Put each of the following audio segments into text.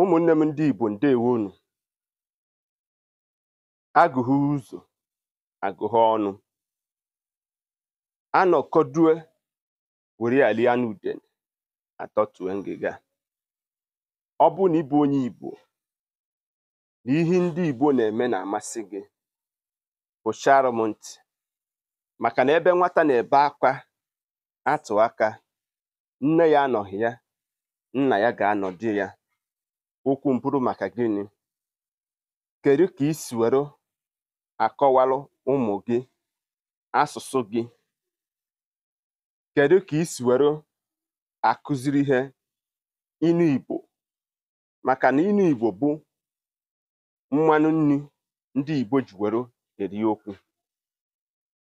ụmụnne m ndị Igbo ndewonu agụghị ụzọ agụghị ọnụ anọkọdue were alia n'udene atọtue ngịga ọ bụ na ịbụ onye Igbo na ihe ndị Igbo na-eme na-amasị gị kpụchara m ntị maka na ebe nwata na-ebe akwa atụ aka nne ya anọghị ya nna ya ga-anọdị ya okwu mbụrụ maka gịnị kedu ka isi were akọwalụ ụmụ gị asụsụ gị kedu ka isi were akụziri ihe inu Igbo maka na inu Igbo bụ mmanụ nri ndị Igbo ji were eri okwu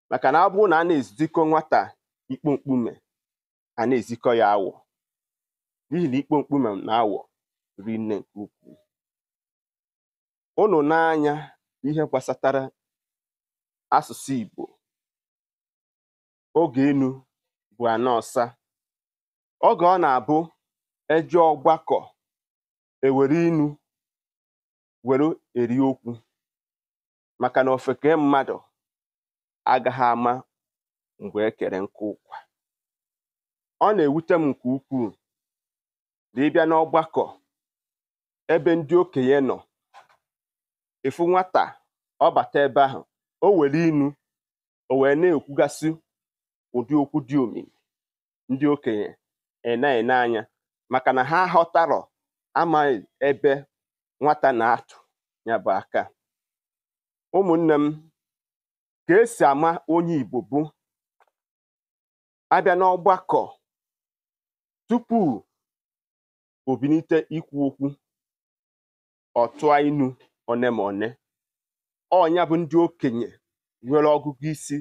maka na ọ na a na-ezikọ nwata ikpo mkpume a na-ezikọ ya awọ n'ihi na ikpo mkpume na awọ rinne nke ukwuu ụnụ n'anya ihe gbasatara asụsụ Igbo oge enu bụ ana oge ọ na-abụ e ọgbakọ ewere inu were eri okwu maka na ofeke mmadụ agaghị ama mgbe ekere nke ụkwa ọ na-ewute m nke ukwuu na ịbịa n'ọgbakọ ebe ndị okenye nọ ịfụ nwata ọ bata ebe ahụ o were inu o wee na ekwugasi ụdị okwu dị òmìmì ndị okenye èna-ène e anya maka na ha aghọtarọ̀ amaghị ebe nwata na-atụ ya bụ aka ụmụnne m ka esi ama onye igbo bụ abịa n'ọgbakọ tupu obinite ikwu okwu ọ inu one ma one ọnya bụ ndị okenye nwere ọgụgụ isi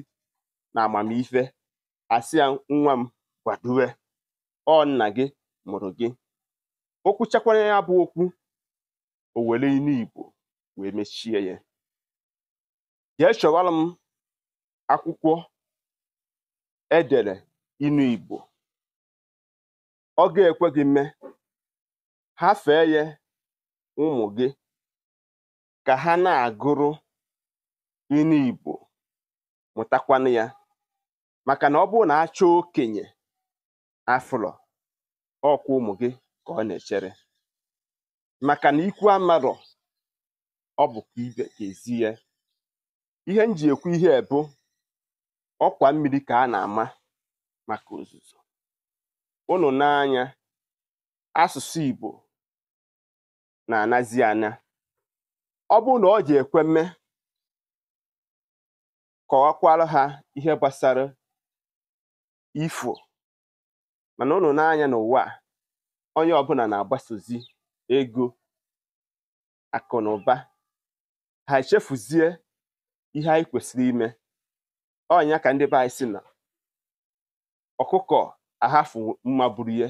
na amamife asị ya nwa m kwadowe ọ nna gị mụrụ gị okwu chakwara ya bụ okwu o were inu igbo wee mechie ya jee chọwara m akwụkwọ edere inu igbo ọ ga-ekwe gị mme ha fee ya ụmụ gị ka ha na-agụrụ ilu Igbo mụtakwanụ ya maka na ọ bụrụ na achọ okenye afụlọ ọkwa ụmụ gị ka ọ na-echere maka na ikwu amarọ ọ bụ ibe ihe m ji ekwu ihe bụ ọkwa mmiri ka a na-ama maka ozuzo unu n'anya asụsụ Igbo na-anazi anya ọ bụrụ na ọ ji ekwe mme kọwakwara ha ihe gbasara ifo mana ụnụ anya n'ụwa onye ọbụla na-agbasozi ego akụ na ụba ha echefuzie ihe anyị kwesịrị ime ọnya ka ndị be anyị si na ọkụkọ ahafu mma buru ihe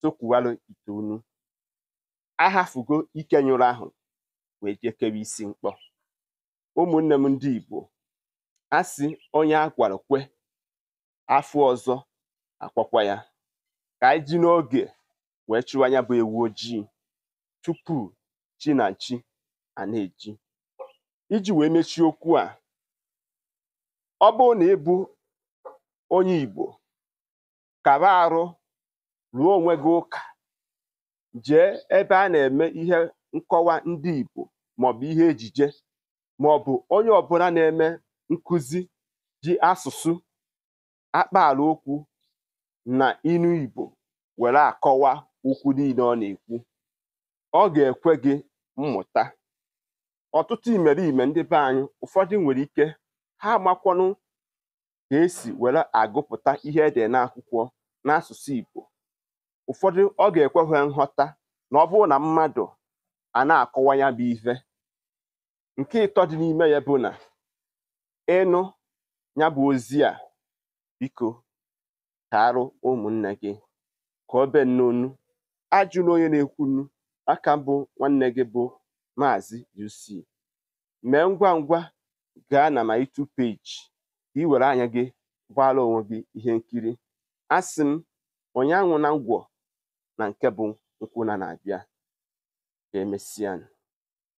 tụkwuwarụ ite unu ahafugo ike nyụrụ ahụ wee jekere isi mkpọ ụmụnne m ndị Igbo a sị onye a gwara kwe afọ ọzọ akwakwa ya ka anyị ji n'oge wee chụwa anya bụ ewu ojii tupu chi na chi a na-eji iji wee mechie okwu a ọ bụrụ na ịbụ onye Igbo kara arụ ruo onwe gị ụka jee ebe a na-eme ihe nkọwa ndị Igbo maọbụ ihe ejije maọbụ onye ọbụla na-eme nkụzi ji asụsụ akpaala okwu na inu Igbo were akọwa okwu niile ọ na-ekwu ọ ga-ekwe gị mmụta ọtụtụ imerime ndị be anyị ụfọdụ nwere ike ha amakwanụ ka esi were agụpụta ihe ede n'akwụkwọ n'asụsụ Igbo ụfọdụ ọ ga-ekwe ha nghọta na ọ bụrụ na mmadụ a na-akọwa ya bụ ife nke ịtọ dị n'ime ya bụ na ịnụ ya bụ ozi a biko ka ụmụnne gị ka obe be ajụla onye na-ekwunu aka bụ nwanne gị bụ Maazị UC mee ngwa ngwa gaa na my two page ka ị were anya gị gbaara onwe gị ihe nkiri asị m ụnyaahụ na ngwọ na nke bụ nkwụ na abịa ka e